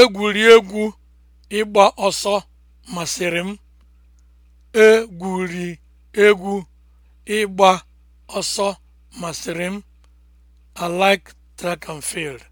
Egwuregwu ịgba ọsọ masịrị m. a ịgba ọsọ masịrị m. I like track and field.